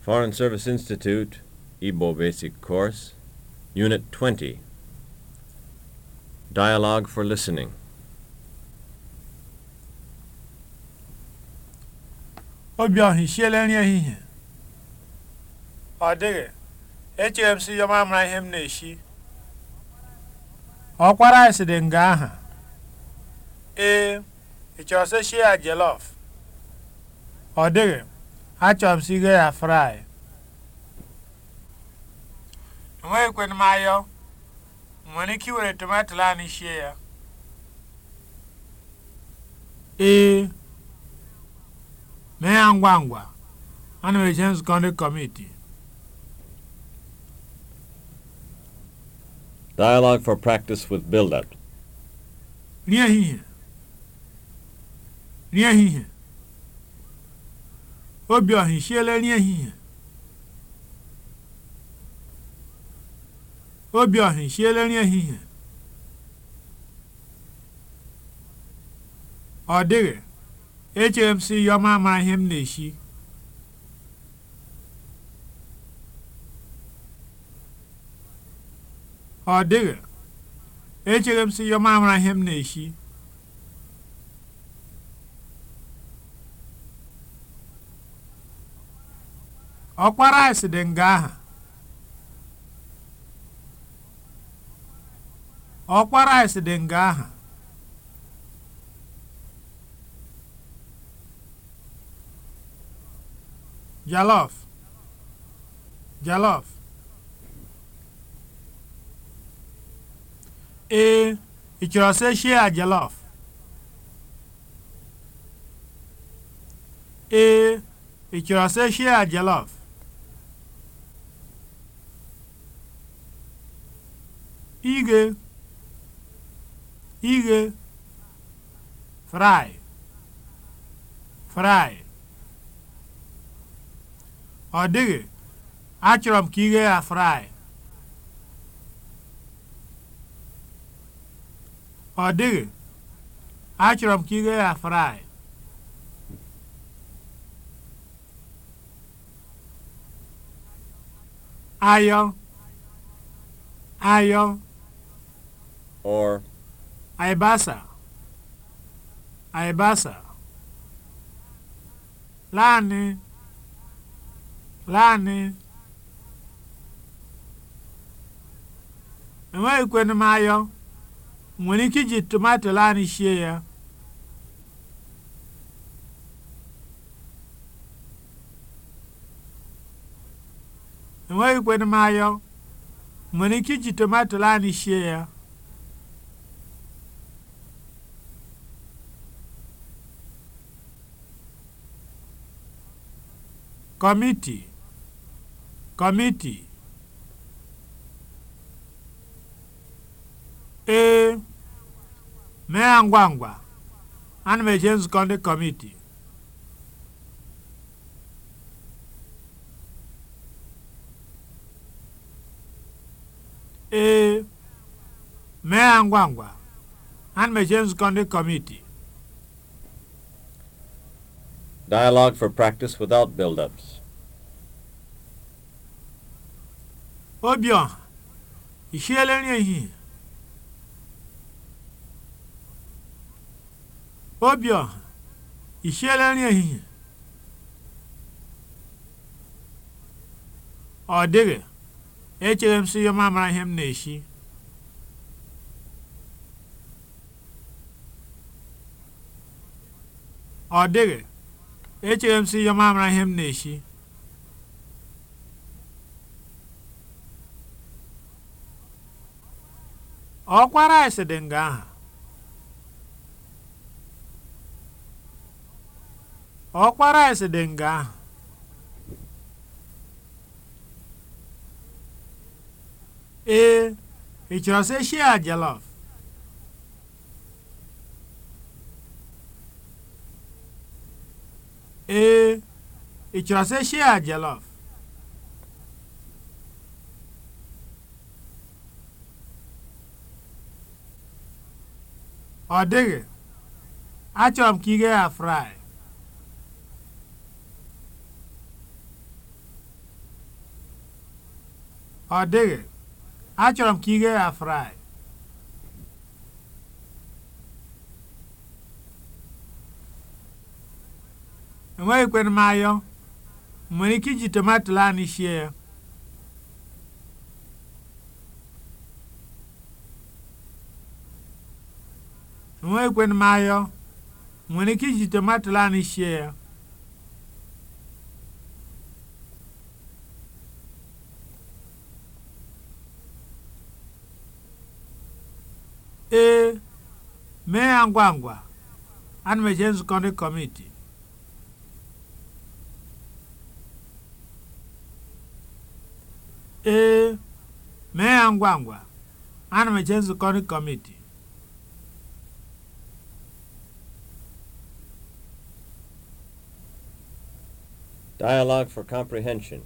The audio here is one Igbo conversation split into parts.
Foreign Service Institute, Igbo Basic Course, Unit 20. Dialogue for Listening. Obiọha isiela nri ehihie? Ọ dịghị. Echere m sị ya mara ihe m na-esi. Ọkwara anyị sịrị nga aha. Ee, ị chọrọ Ọ Achọrọ m sigo ya fry. Enweghị kwe m ayọ, nwere ike iwere tomato anyị sie ya. Ee, mee ya ngwa ngwa, ana m eje nzukọ ndị Dialogue for practice with build-up. Nri ehihie. Nri Obiọha esiela nri ehihie nri ehihie ọ dịghị echere m sị ya ihe m na ọ dịghị echere m ihe m na-esi ọkpara isi dị nga aha ọkpara isi dị nga aha jalof jalof ee ị chọrọ sị shie a jalof ee ị chọrọ sị shie a jalof ighe ighe fry fry ọ dịghị achọrọ m ka ighe ya fry ọ dịghị achọrọ m ka ighe ya fry ayọ ayọ or aibasa aibasa lani lani enweghị kwenu m ayọ nwere ike iji tomato lani sie ya enweghị kwenu m ayọ nwere ike iji tomato lani sie ya Committee kọmiti. Ee, mee ya ngwa ngwa, ana nzukọ ndị Dialogue for practice without build-ups. Ọbịa, ị siela nri ehihie? Ọbịa, ị siela nri ehihie? Ọ dịghị, echere m sị ya m amara ihe m na-esi. Ọ oh, dịghị. echere m sị ya m ihe m na-eshi ọkwa rice dị nga aha ọkwa dị nga aha ee ị chọrọ sị shia jollof Eh, ee ị chọrọ sị shia jollof ọ dịghị achọrọ m ka ighe ya fry fry enweghịkwana m ayọ nwere ike iji tomato ya ayọ nwere ike iji tomato anyị ya ee mee ya ngwa ngwa ana m eje nzukọ ndị kọmiti ee mee ya ngwa ngwa ana m eje nzukọ ndị kọmiti Dialogue for comprehension.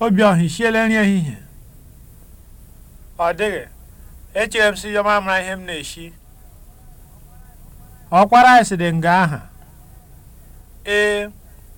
Obi Obiọha isiela nri ehihie ọ dịghị echere m si yọma mara ihe m na esi ọkwara anyị dị nga aha ee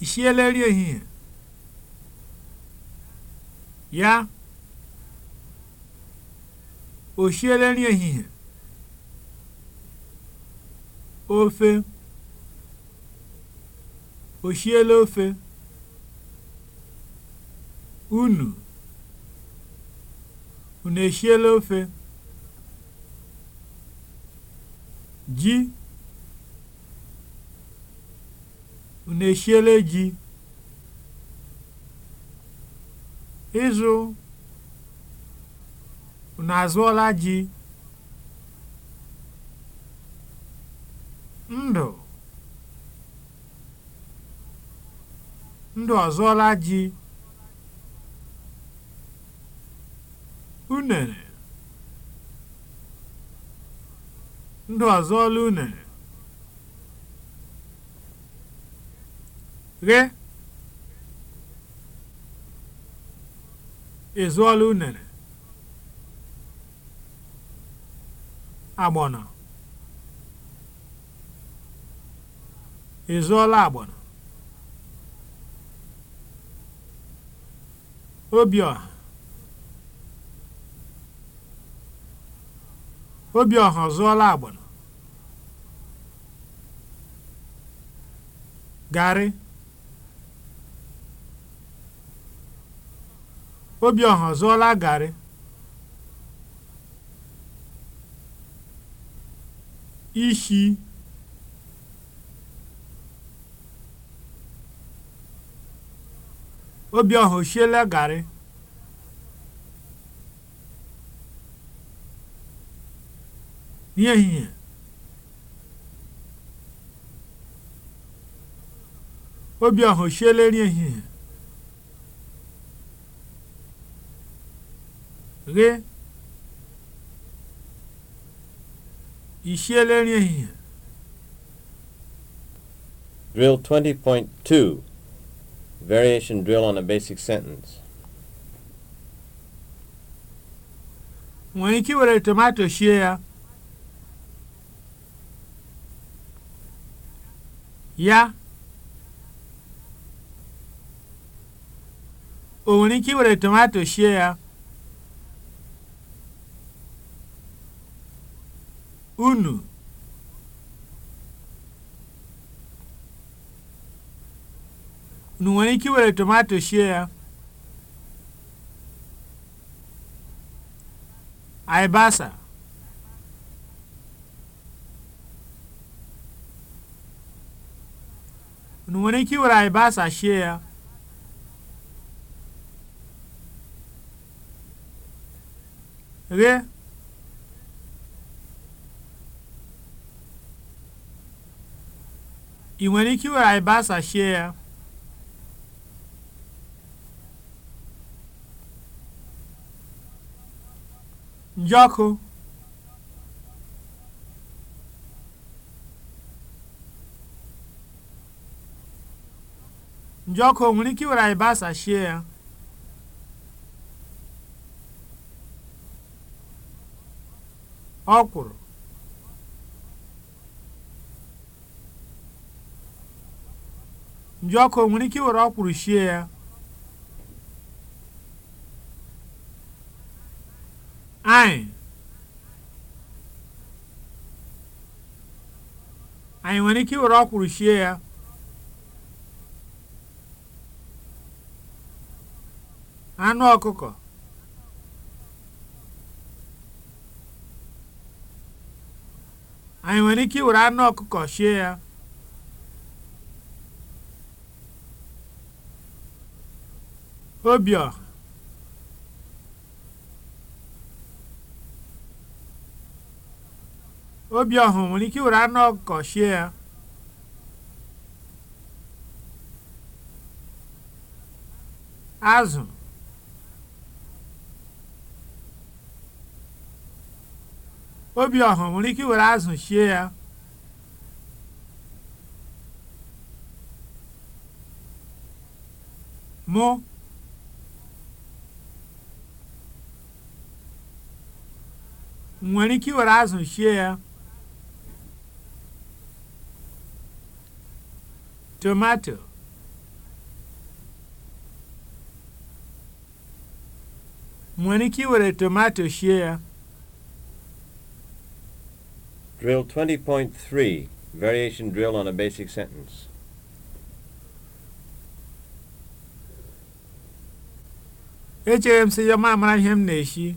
I siela Ya? O siela ehihie? Ofe? O ofe? Unu? Unu eshiela ofe? Ji? na eshiela ji? Ịzụ na azụọla ji? Ndụ ndụ ọzụọla ji? Unere ndụ ọzụọla unere? ghe ezuola unere agbọnọ ezuola agbọnọ obi obiọha zụọla agbọnọ garị obi ọ zụọla garị? Ishi Obiọha o shiela garị? N'ehihie Obiọha o shiela nri ghe i siela nri ehihie Drill 20.2 Variation drill on a basic sentence nwere ike iwere tomato sie ya ya o nwere ike iwere tomato sie ya unu unu nwere ike iwere tomato sie ya aịbasa unu nwere ike iwere aịbasa sie ya ghee ị nwere ike iwere alibasa sie ya njọkụ njọkụ o nwere ike iwere alibasa sie ya ọkwụrụ nji ọkụ nwere ike iwere ọkwụrụ shie ya anyị anyị nwere ike iwere ọkwụrụ shie ya anụ ọkụkọ anyị nwere ike iwere anụ ọkụkọ shie ya Obi Obiọha nwere ike were anụ ọkụkọ shie ya azụ nwere ike azụ shie ya mụ nwere ike iwere azụ shie ya tomato nwere ike iwere tomato shie ya Drill 20.3 Variation drill on a basic sentence. Echere m sị ya ma mara ihe m na-eshi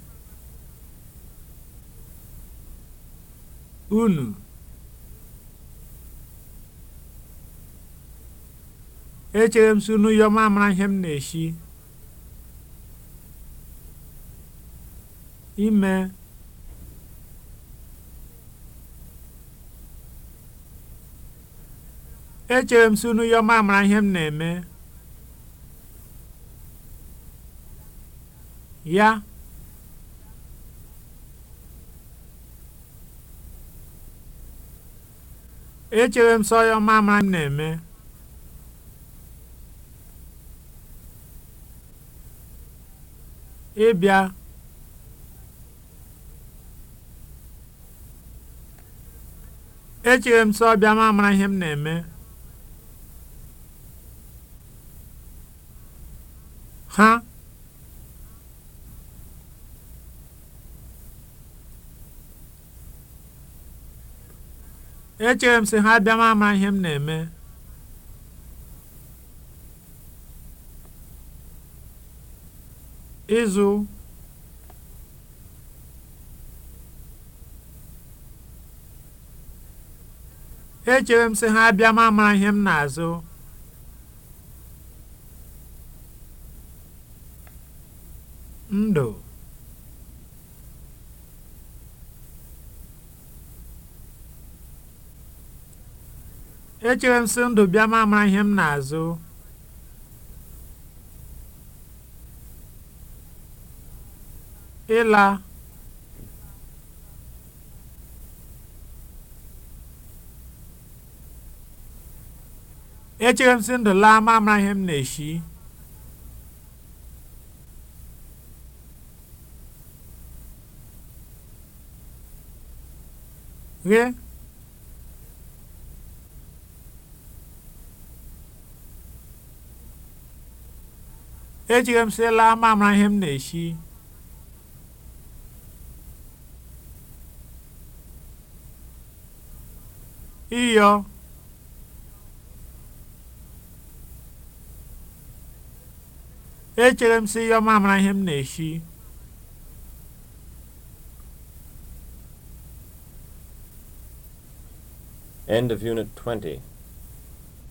unu echere m sunu yọma mara ihe m na-eshi ime echere m sunu yọma mara ihe m na-eme ya echere m sọya ọma mara m na-eme ịbịa echere m sọ bịa ma mara ihe m na-eme echere m sị ha abịa ama ihe m na-eme ịzụ echere m sị ha abịa ama ihe m na-azụ echere m si ndụ bịa ma mara ihe m na-azụ ịla echere m si ndụ laa ma mara ihe m na-eshi ghe m sịla ihe na-esi. Ịyọ. Echere m sị ịyọ ihe m na-esi. End of Unit 20.